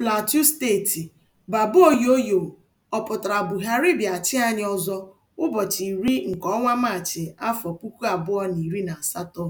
Plateau Steeti: Baba Oyoyo ọ pụtara Buhari bịachi anyị ọzọ ụbọchị iri nke ọnwa Maachị, afọ puku abụọ na iri na asatọ?